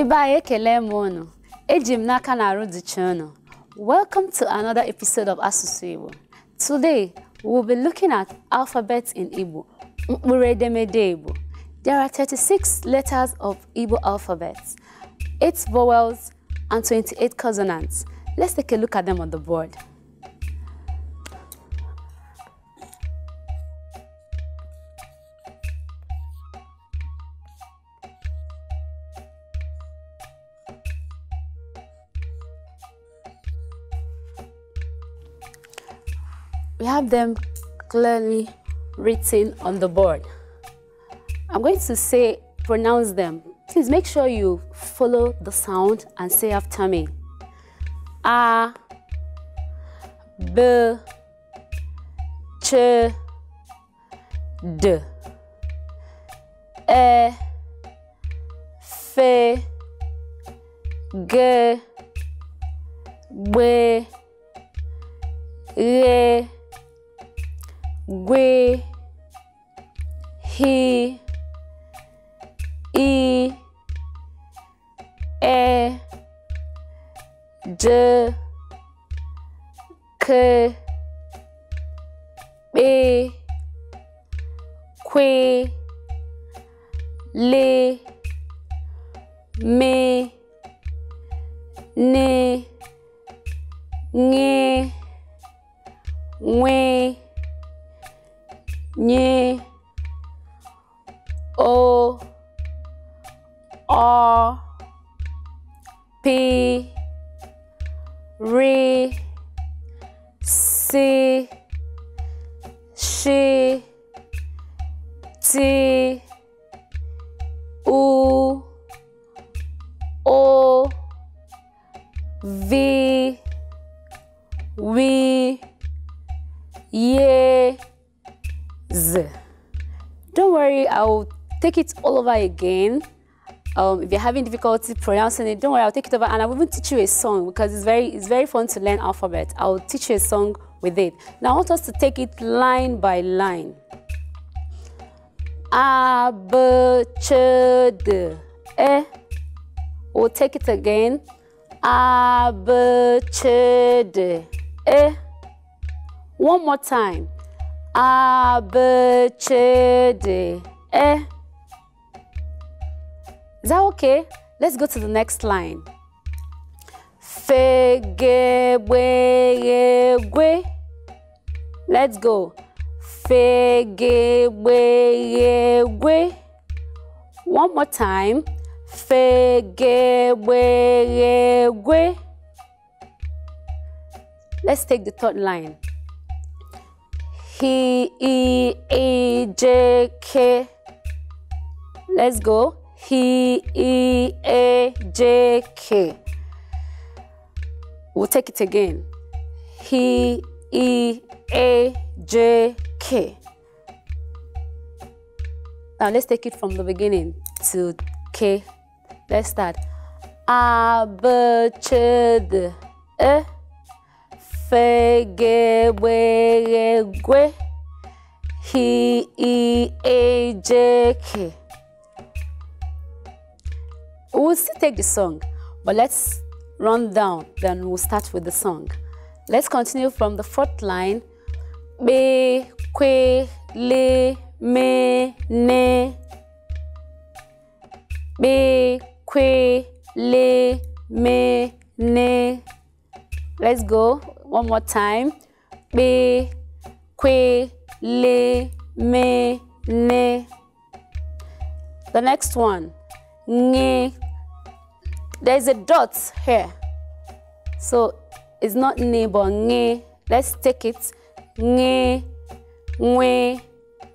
ekele Welcome to another episode of Asụsụ Igbo. Today, we'll be looking at alphabets in Igbo, mkpụrụ edemede Igbo. There are 36 letters of Igbo alphabets, 8 vowels, and 28 consonants. Let's take a look at them on the board. them clearly written on the board. I'm going to say, pronounce them. Please make sure you follow the sound and say after me. A, B, Ch, D, E, F, G, B, R, we, he, e, e, d, k, b, que, le, me, ne, we. nyi o ọ P R C S T u o V wi ye. worry, I'll take it all over again. Um, if you're having difficulty pronouncing it, don't worry, I'll take it over and I will even teach you a song because it's very, it's very fun to learn alphabet. I'll teach you a song with it. Now I want us to take it line by line. A, B, Ch, D, E. We'll take it again. A, B, Ch, D, E. One more time. A, B, C, D, E. Is that okay? Let's go to the next line. Fe, ge, we, ye, we. Let's go. Fe, ge, we, ye, we. One more time. Fe, ge, we, ye, we. Let's take the third line. He, A, J, K. Let's go. H E A, J, K. We'll take it again. H E A J K. Now let's take it from the beginning to K. Let's start. A B C D E. Fegewegwe. a j k. We'll still take the song, but let's run down. Then we'll start with the song. Let's continue from the fourth line. Be kwe le me ne. Be kwe le me ne. Let's go. One more time. Be, que, le, me, ne. The next one. Nge. There's a dot here. So it's not ne, but nge. Let's take it. Nge, nwe,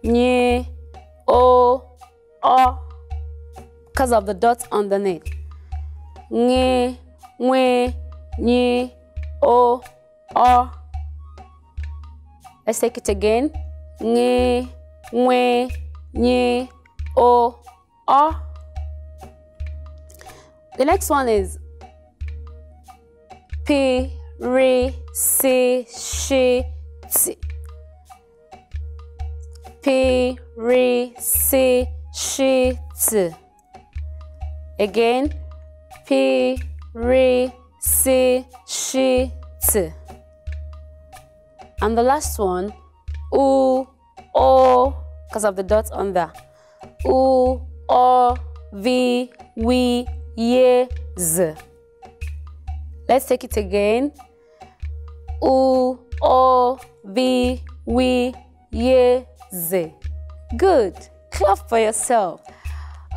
nye, o, o. Because of the dot underneath. Nge, nwe, nye, o o. Oh. Let's take it again. Nye, nwe, nye, o, o. The next one is P, Sh, T. P, R, C, Sh, T. Again, P, R, C, Sh, T. And the last one, oo, o, oh, because of the dot on the. Oo, oh, we, ye, z. Let's take it again. Oo, oh, we, ye, z. Good. Clap for yourself.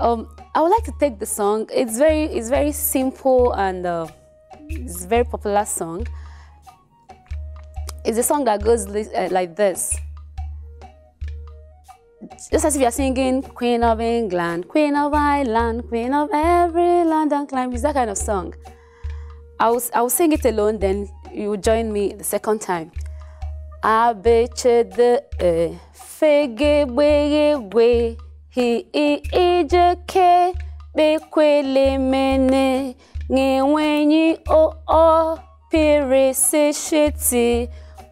Um, I would like to take the song. It's very, it's very simple and uh, it's a very popular song. It's a song that goes uh, like this. Just as if you're singing Queen of England, Queen of Ireland, Queen of every land and climb. It's that kind of song. I'll, I'll sing it alone, then you join me the second time. Abechede fegebwegwe hi ijeke bekwelemene ngewenyi o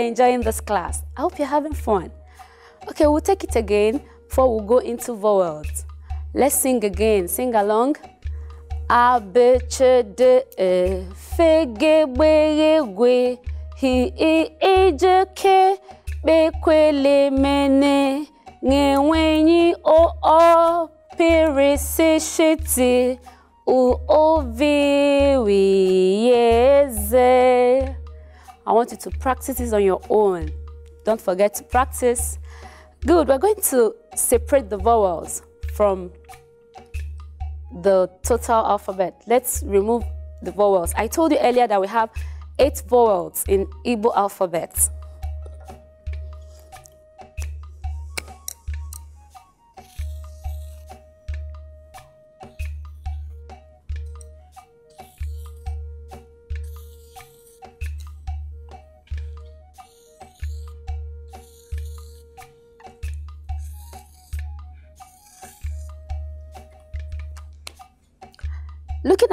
are enjoying this class. I hope you're having fun. Okay, we'll take it again before we go into vowels. Let's sing again. Sing along. A B C D E F G B E G H I I J K B Q L M N N W N O O P R S Sh T U O V W E Z. I want you to practice this on your own. Don't forget to practice. Good, we're going to separate the vowels from the total alphabet. Let's remove the vowels. I told you earlier that we have eight vowels in Igbo alphabet.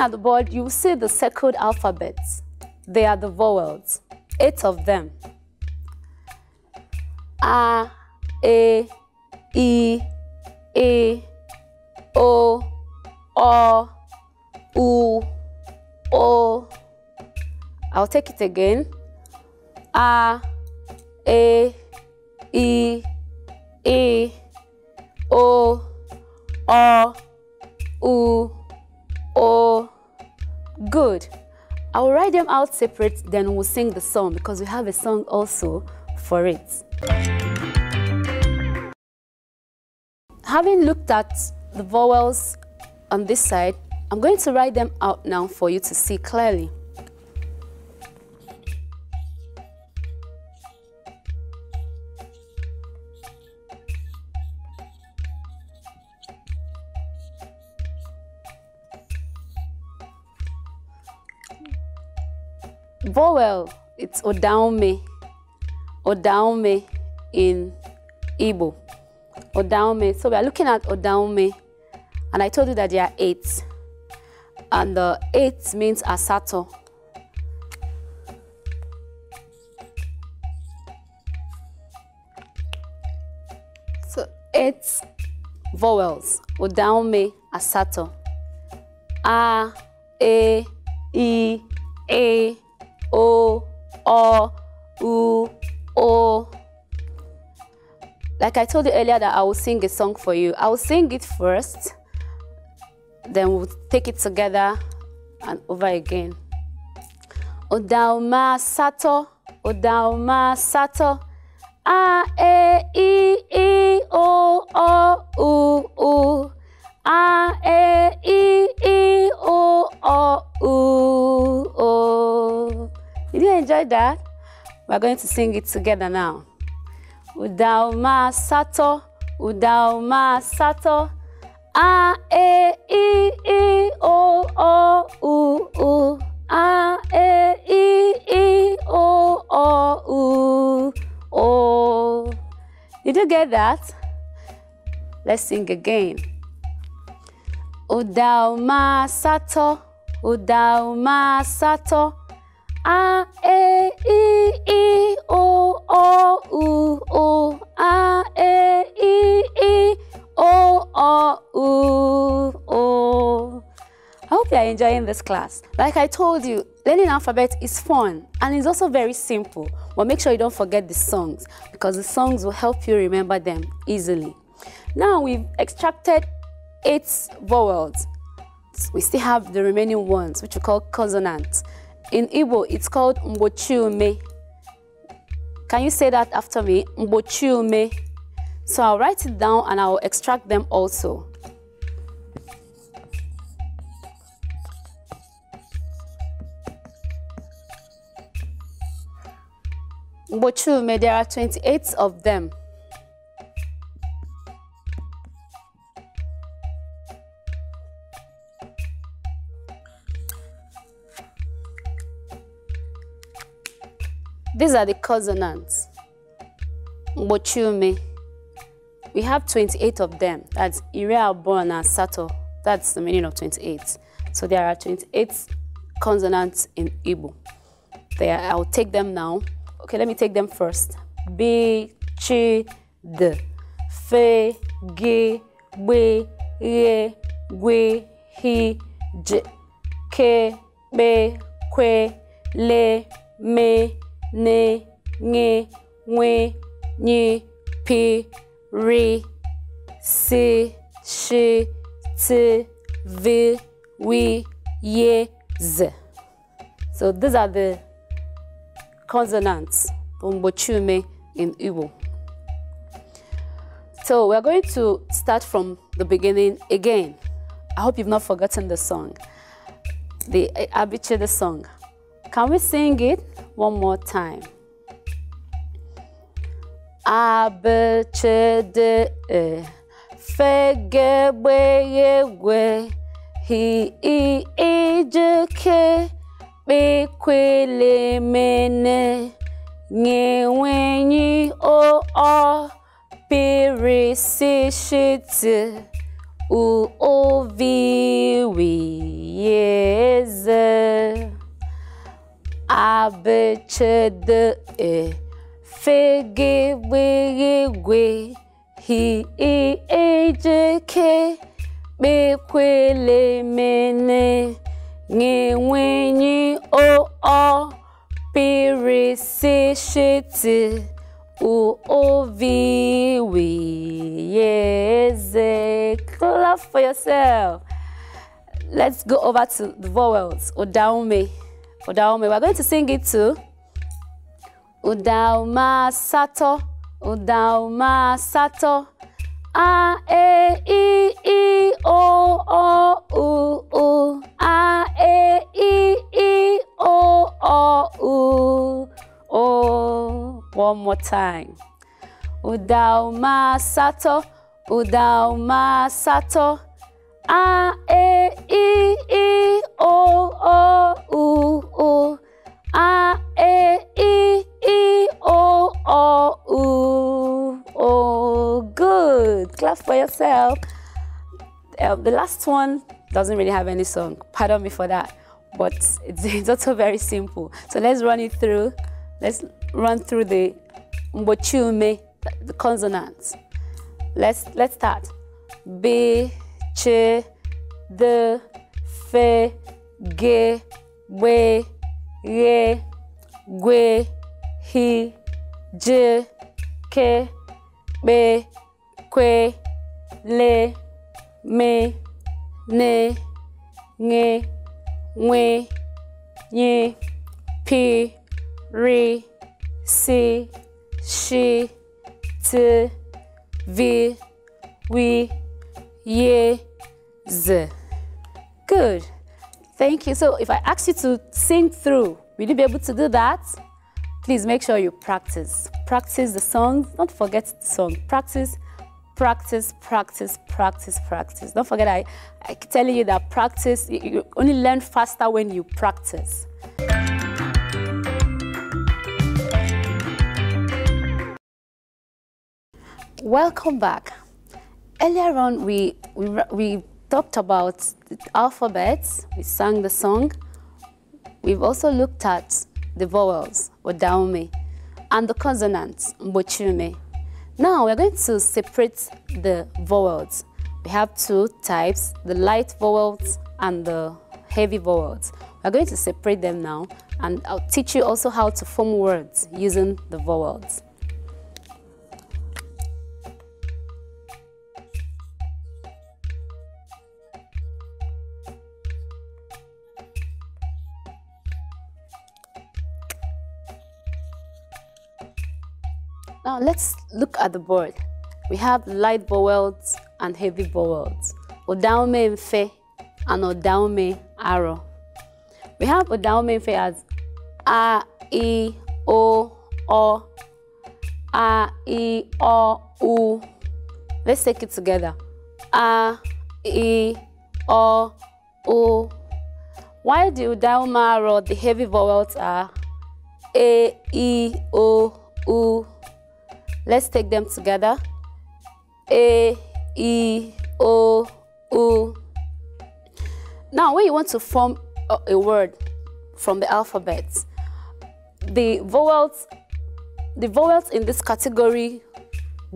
at the board, you see the circled alphabets. They are the vowels, eight of them. A, E, I, E, O, O, U, O. I'll take it again. Oh. Good. I will write them out separate, then we'll sing the song because we have a song also for it. Having looked at the vowels on this side, I'm going to write them out now for you to see clearly. Vowel, it's Odaume. Odaume in Igbo. Odaume. So we are looking at Odaume. And I told you that there are eight. And the eight means Asato. So eight vowels. Odaume, Asato. A, E, I, E, O, O, U, O. Like I told you earlier that I will sing a song for you. I will sing it first, then we'll take it together and over again. Odauma sato, odauma sato. A, E, I, E, O, O, U, U. A, E, I, E, O, O, U, O. Did you enjoy that? We're going to sing it together now. Udauma sato, udauma sato. A, E, I, I, O, O, U, U. A, E, I, I, O, O, U, O. Did you get that? Let's sing again. Udauma sato, udauma sato. A, this class. Like I told you, learning alphabet is fun and it's also very simple, but make sure you don't forget the songs because the songs will help you remember them easily. Now we've extracted eight vowels. We still have the remaining ones, which we call consonants. In Igbo, it's called mbochiume. Can you say that after me? Mbochiume. So I'll write it down and I'll extract them also. Bochume, there are 28 of them. These are the consonants. Bochume. We have 28 of them. That's Ira, and Sato. That's the meaning of 28. So there are 28 consonants in Igbo. There, I'll take them now. Okay, let me take them first. B, chi, d. Fe, gi, we, ye, we, he, j. Ke, be, que, le, me, ne, nge, we, ni, pi, ri, si, shi, ti, vi, we, ye, z. So these are the consonants, umbochume in Igbo. So we're going to start from the beginning again. I hope you've not forgotten the song, the Abiche the song. Can we sing it one more time? Abechede e eh, fegegbeyegwe hi i ijeke ekwelemene ngewenyi o o peresishiti u oviwiyeze abechede e fegegbegegwe hi i ejeke kpekwelemene ngewenyi o ọ pirisishiti u O ovi wiyeze. Clap for yourself. Let's go over to the vowels. Odaume. Odaume. We're going to sing it too. Udauma sato. Udauma sato. A, E, I, I, O, O, U, U. A, E, I, I. O o u o, One more time. Udauma sato, udauma sato. A, e, i, i, o, o, u, u. A, e, i, i, o, o, u. good. Clap for yourself. Uh, the last one doesn't really have any song. Pardon me for that but it's, it's also very simple. So let's run it through. Let's run through the mbochume, the consonants. Let's, let's start. B, ch, d, fe, ge, we, ye, gwe, hi, j, ke, be, kwe, le, me, ne, nge, we ye p, re, si, shi, t, v, we, ye, z. Good. Thank you. So if I ask you to sing through, will you be able to do that? Please make sure you practice. Practice the song. Don't forget the song. Practice practice, practice, practice, practice. Don't forget, I, I telling you that practice, you, only learn faster when you practice. Welcome back. Earlier on, we, we, we talked about the alphabets, we sang the song. We've also looked at the vowels, or and the consonants, mbochume. Now we're going to separate the vowels. We have two types, the light vowels and the heavy vowels. We're going to separate them now and I'll teach you also how to form words using the vowels. Now let's look at the board. We have light vowels and heavy vowels. Odaume mfe and odaume aro. We have odaume mfe as a, e o, o, a, e o, u. Let's take it together. A, e o, u. Why do odaume aro, the heavy vowels are a e, o, u. Let's take them together. A, E, O, U. Now, when you want to form a word from the alphabet, the vowels, the vowels in this category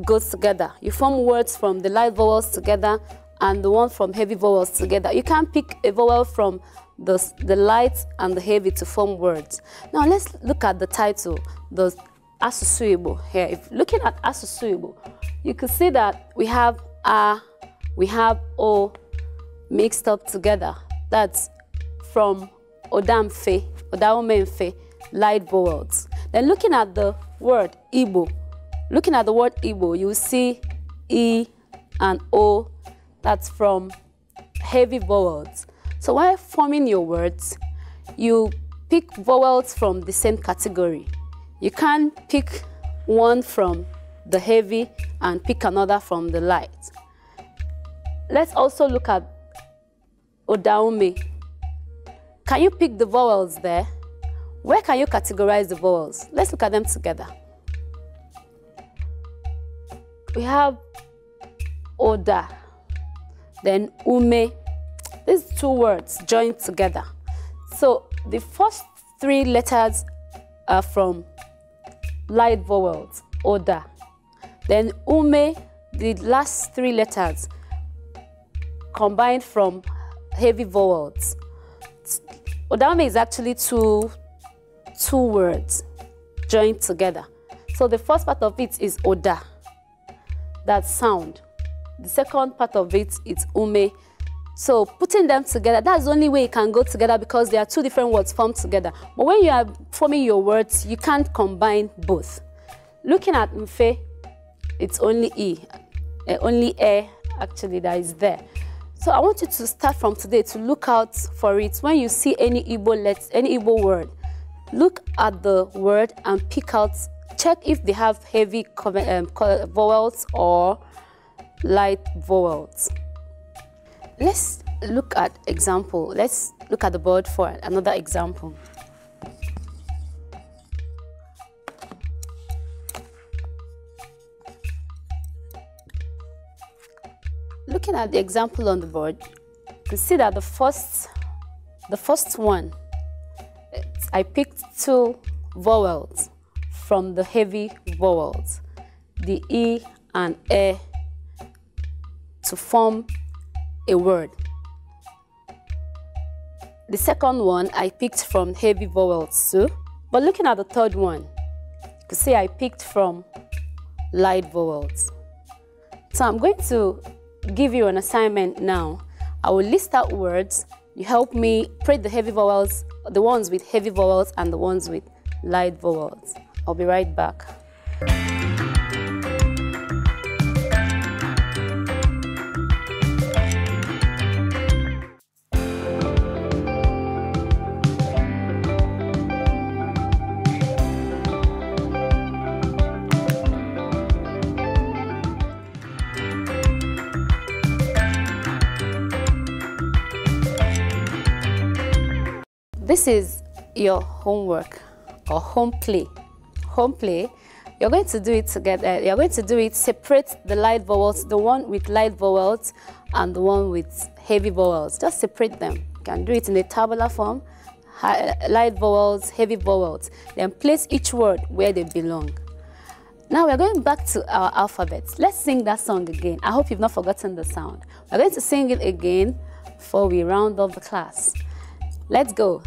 go together. You form words from the light vowels together and the one from heavy vowels together. You can pick a vowel from the, the light and the heavy to form words. Now let's look at the title, the Asusu here. If looking at Asusu you can see that we have A, we have O mixed up together. That's from Odamfe, Odaomenfe, light boards. Then looking at the word Igbo, looking at the word Igbo, you see E and O, that's from heavy vowels. So while forming your words, you pick vowels from the same category. You can pick one from the heavy and pick another from the light. Let's also look at Odaume. Can you pick the vowels there? Where can you categorize the vowels? Let's look at them together. We have Oda, then Ume. These two words joined together. So the first three letters are from light vowels, oda. Then ume, the last three letters combined from heavy vowels. Odame is actually two, two words joined together. So the first part of it is oda, that sound. The second part of it is ume, so putting them together, that's the only way it can go together because there are two different words formed together. But when you are forming your words, you can't combine both. Looking at mfe, it's only e, eh, only e actually that is there. So I want you to start from today to look out for it. When you see any Igbo let any Igbo word, look at the word and pick out, check if they have heavy um, vowels or light vowels. Let's look at example. Let's look at the board for another example. Looking at the example on the board, you can see that the first, the first one, I picked two vowels from the heavy vowels, the E and a, to form a word. The second one I picked from heavy vowels too. But looking at the third one, you could see I picked from light vowels. So I'm going to give you an assignment now. I will list out words. You help me print the heavy vowels, the ones with heavy vowels and the ones with light vowels. I'll be right back. This is your homework or home play. Home play, you're going to do it together. You're going to do it, separate the light vowels, the one with light vowels and the one with heavy vowels. Just separate them. You can do it in a tabular form, light vowels, heavy vowels. Then place each word where they belong. Now we're going back to our alphabet. Let's sing that song again. I hope you've not forgotten the sound. We're going to sing it again before we round off the class. Let's go.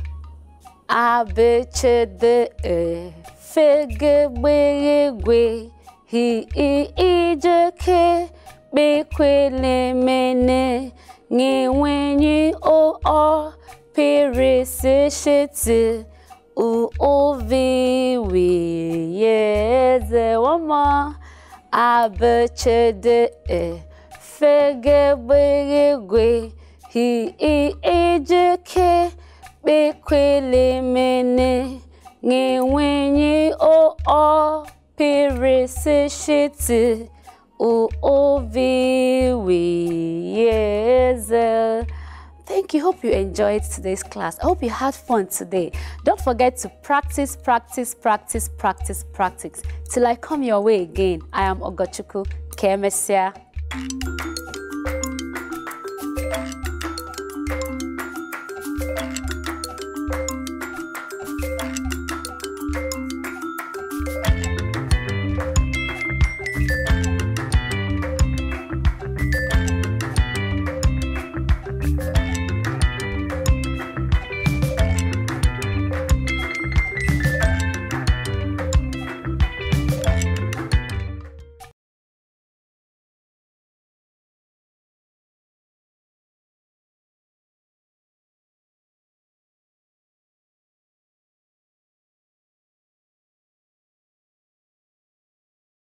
A B C D E F G B G G H I I J K B Q L M N N W N O O P R S Sh T U O V W Y Z One more. A B C D E F G B G G H I I J K kpekelemene ngewenye o o pirisi shiti o oviwiyeze. Thank you. Hope you enjoyed today's class. I hope you had fun today. Don't forget to practice, practice, practice, practice, practice. Till I come your way again, I am Ogochuku Kemesia.